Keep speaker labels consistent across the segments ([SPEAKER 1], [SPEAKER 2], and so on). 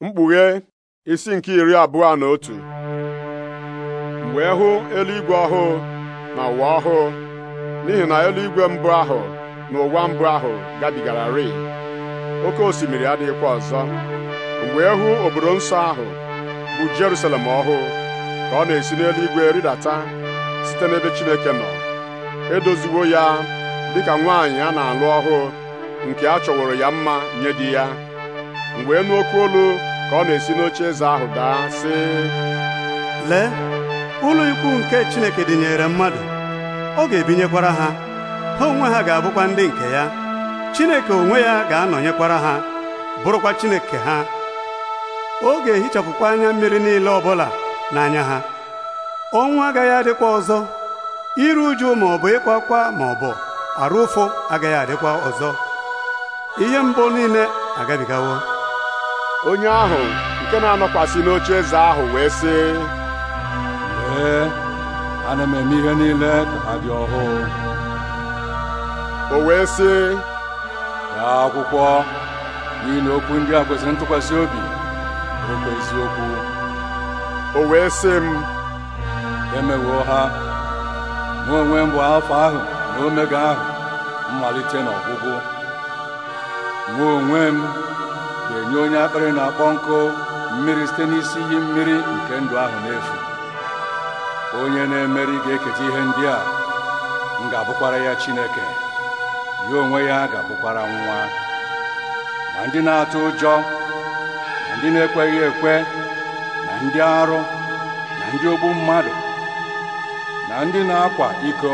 [SPEAKER 1] mkpughe isi nke iri abụọ na otu wee hụ eluigwe ọhụụ na ụwa ọhụụ n'ihi na eluigwe mbụ ahụ na ụwa mbụ ahụ gabigara rịị oke osimiri adịghịkwa ọzọ wee hụ obodo nsọ ahụ bụ Jerusalem ọhụụ ka ọ na-esi n'eluigwe rịdata site n'ebe Chineke nọ edoziwo ya dịka nwaanyị a na-alụ ọhụụ nke a chọworo ya mma nye di ya m wee nụ olu ka ọ na-esi n'oche eze ahụ daa sị lee ụlọ ikwu nke Chineke dịnyere mmadụ ọ ga-ebinyekwara ha ha onwe ha ga-abụkwa ndị nke ya Chineke onwe ya ga-anọnyekwara ha bụrụkwa Chineke ha ọ ga-ehichapụkwa anya mmiri niile ọbụla n'anya ha ọnwụ agaghị adịkwa ọzọ iru uju ma ọ bụ ịkwa akwa ma ọ bụ arụ ụfụ agaghị adịkwa ọzọ ihe mbụ niile agabigawo onye ahụ nke na-anọkwasị n'oche eze ahụ wee sị
[SPEAKER 2] Ee, ana m eme ihe niile ka ha dị ọhụụ o wee sị gaa akwụkwọ n'ihi okwu ndị a kwesịrị ntụkwasị obi okwu eziokwu o wee sị m emewoo ha mụ onwe m bụ afọ ahụ na omega ahụ mmalite na ọgwụgwụ mụ onwe m ga-enye onye akpịrị na-akpọ nkụ mmiri site n'isi iyi mmiri nke ndụ ahụ n'efu onye na-emeri ga-eketa ihe ndị a m ga-abụkwara ya Chineke ya onwe ya ga-abụkwara nwa ma ndị na-atụ ụjọ na ndị na-ekweghị ekwe na ndị arụ na ndị ogbu mmadụ na ndị na-akwa iko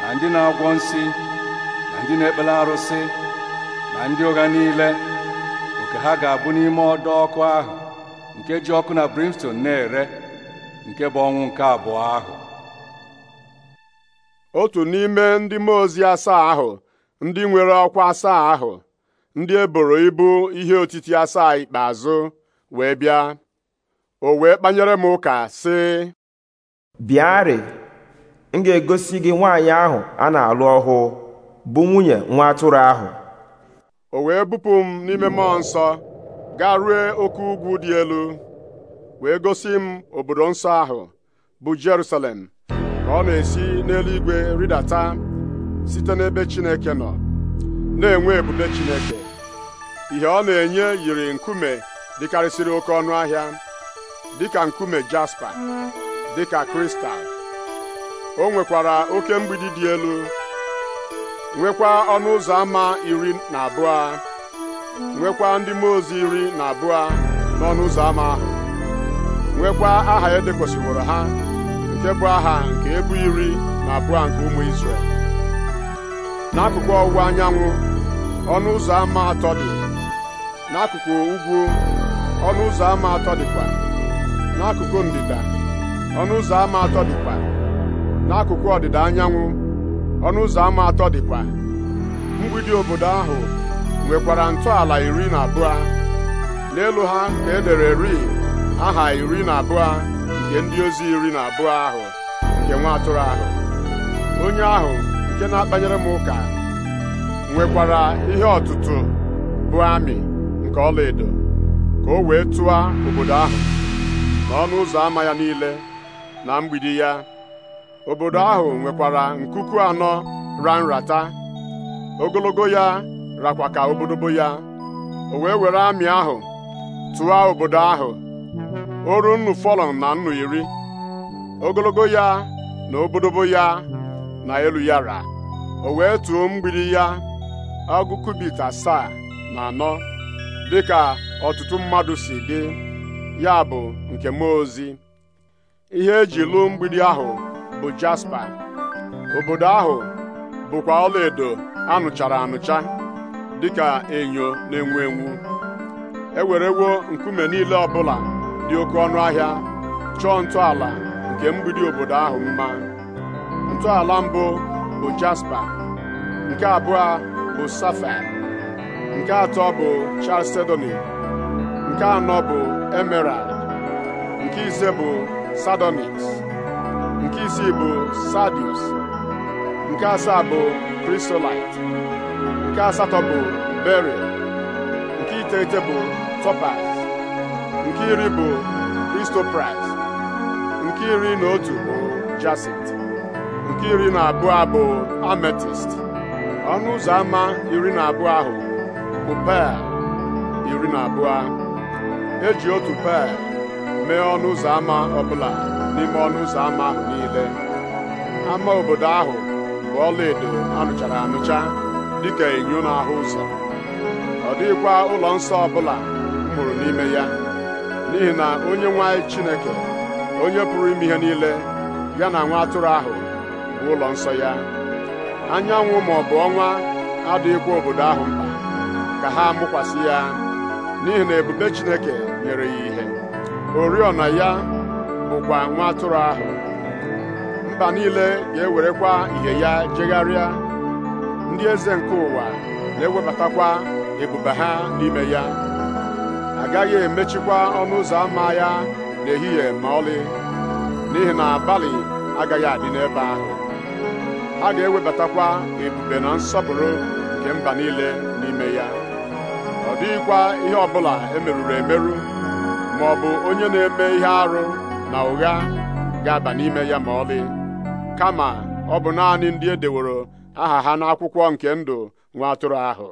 [SPEAKER 2] na ndị na-agwọ nsi na ndị na-ekpele arụsị na ndị ụgha niile ka ha ga-abụ n'ime ọdọ ọkụ ahụ nke ji ọkụ na brimstone na-ere nke bụ ọnwụ nke abụọ ahụ otu n'ime ndị mmụọ ozi asaa ahụ
[SPEAKER 1] ndị nwere ọkwa asaa ahụ ndị eboro ibu ihe otiti asaa ikpeazụ wee bịa o wee kpanyere m ụka sị bịarị m ga-egosi gị nwaanyị ahụ a na-alụ ọhụụ bụ nwunye nwa atụrụ ahụ o wee bupụ m n'ime mmụọ nsọ gaa rue oke ugwu dị elu wee gosi m obodo nsọ ahụ bụ Jerusalem ka ọ na-esi n'eluigwe rịdata site n'ebe Chineke nọ na-enwe ebube Chineke ihe ọ na-enye yiri nkume dịkarịsịrị oke ọnụ ahịa dịka nkume jaspa dịka kristal o nwekwara oke mgbidi dị elu nwekwa ọnụ ụzọ ámá iri na abụọ nwekwa ndị mmụọ ozi iri na abụọ n'ọnụ ụzọ ámá ahụ nwekwa aha e ha nke bụ aha nke ebu iri na abụọ nke ụmụ Izrel n'akụkụ ọwụwa anyanwụ ọnụ ụzọ ámá atọ dị n'akụkụ ugwu ọnụ ụzọ ámá atọ dịkwa n'akụkụ ndịda ọnụ ụzọ ámá atọ dịkwa n'akụkụ ọdịda anyanwụ ọnụ ụzọ ámá atọ dịkwa mgbidi obodo ahụ nwekwara ntọala iri na abụọ n'elu ha na-edere ri aha iri na abụọ nke ndị ozi iri na abụọ ahụ nke nwa atụrụ ahụ onye ahụ nke na-akpanyere m ụka nwekwara ihe ọtụtụ bụ amị nke ọlaedo ka o wee tụọ obodo ahụ na ọnụ ụzọ ama ya niile na mgbidi ya obodo ahụ nwekwara nkuku anọ ra nrata ogologo ya rakwa ka obodobo ya o wee were amị ahụ tụọ obodo ahụ o ruo nnu fọlọn na nnu iri ogologo ya na obodobo ya na elu ya ra o wee tụọ mgbidi ya ọgụ kubit asaa na anọ dịka ọtụtụ mmadụ si dị ya bụ nke mmụọ ozi ihe eji lụọ mgbidi ahụ bụ jaspa obodo ahụ bụkwa ọlaedo anụchara anụcha dịka enyo na-enwu enwu ewerewo nkume niile ọbụla dị oke ọnụ ahịa chọọ ntọala nke mgbidi obodo ahụ mma ntọala mbụ bụ jaspa nke abụọ bụ safair nke atọ bụ chalcedony nke anọ bụ emerald nke ise bụ sardonyx nke isii bụ Sadius nke asaa bụ Krisolite nke asatọ bụ Beria nke iteghete bụ Topaz nke iri bụ Kristopras nke iri na otu bụ Jacint nke iri na abụọ bụ Ametist ọnụ ụzọ ámá iri na abụọ ahụ bụ pear iri na abụọ eji otu pear mee ọnụ ụzọ ámá ọbụla n'ime ọnụ ụzọ ámá ahụ niile ama obodo ahụ bụ ọlaedo anụchara anụcha dịka enyo ahụ ụzọ ọ dịghịkwa ụlọ nsọ ọbụla mụrụ n'ime ya n'ihi na onye nwa Chineke onye pụrụ ime ihe niile ya na nwa atụrụ ahụ bụ ụlọ nsọ ya anyanwụ ma ọ bụ ọnwa adịghịkwa obodo ahụ mkpa ka ha mụkwasị ya n'ihi na ebube Chineke nyere ya ihe oriọna ya bụkwa nwa atụrụ ahụ mba niile ga-ewerekwa ihe ya jegharịa ndị eze nke ụwa na-ewebatakwa ebube ha n'ime ya agaghị emechikwa ọnụ ụzọ ámá ya n'ehihie ma ọlị n'ihi na abalị agaghị adị n'ebe ahụ a ga-ewebatakwa ebube na nsọpụrụ nke mba niile n'ime ya ọ dịghịkwa ihe ọbụla emeruru emerụ ma ọ onye na-eme ihe arụ na ụgha ga-aba n'ime ya ma ọlị kama ọ bụ naanị ndị e deworo aha ha n'akwụkwọ nke ndụ nwa atụrụ ahụ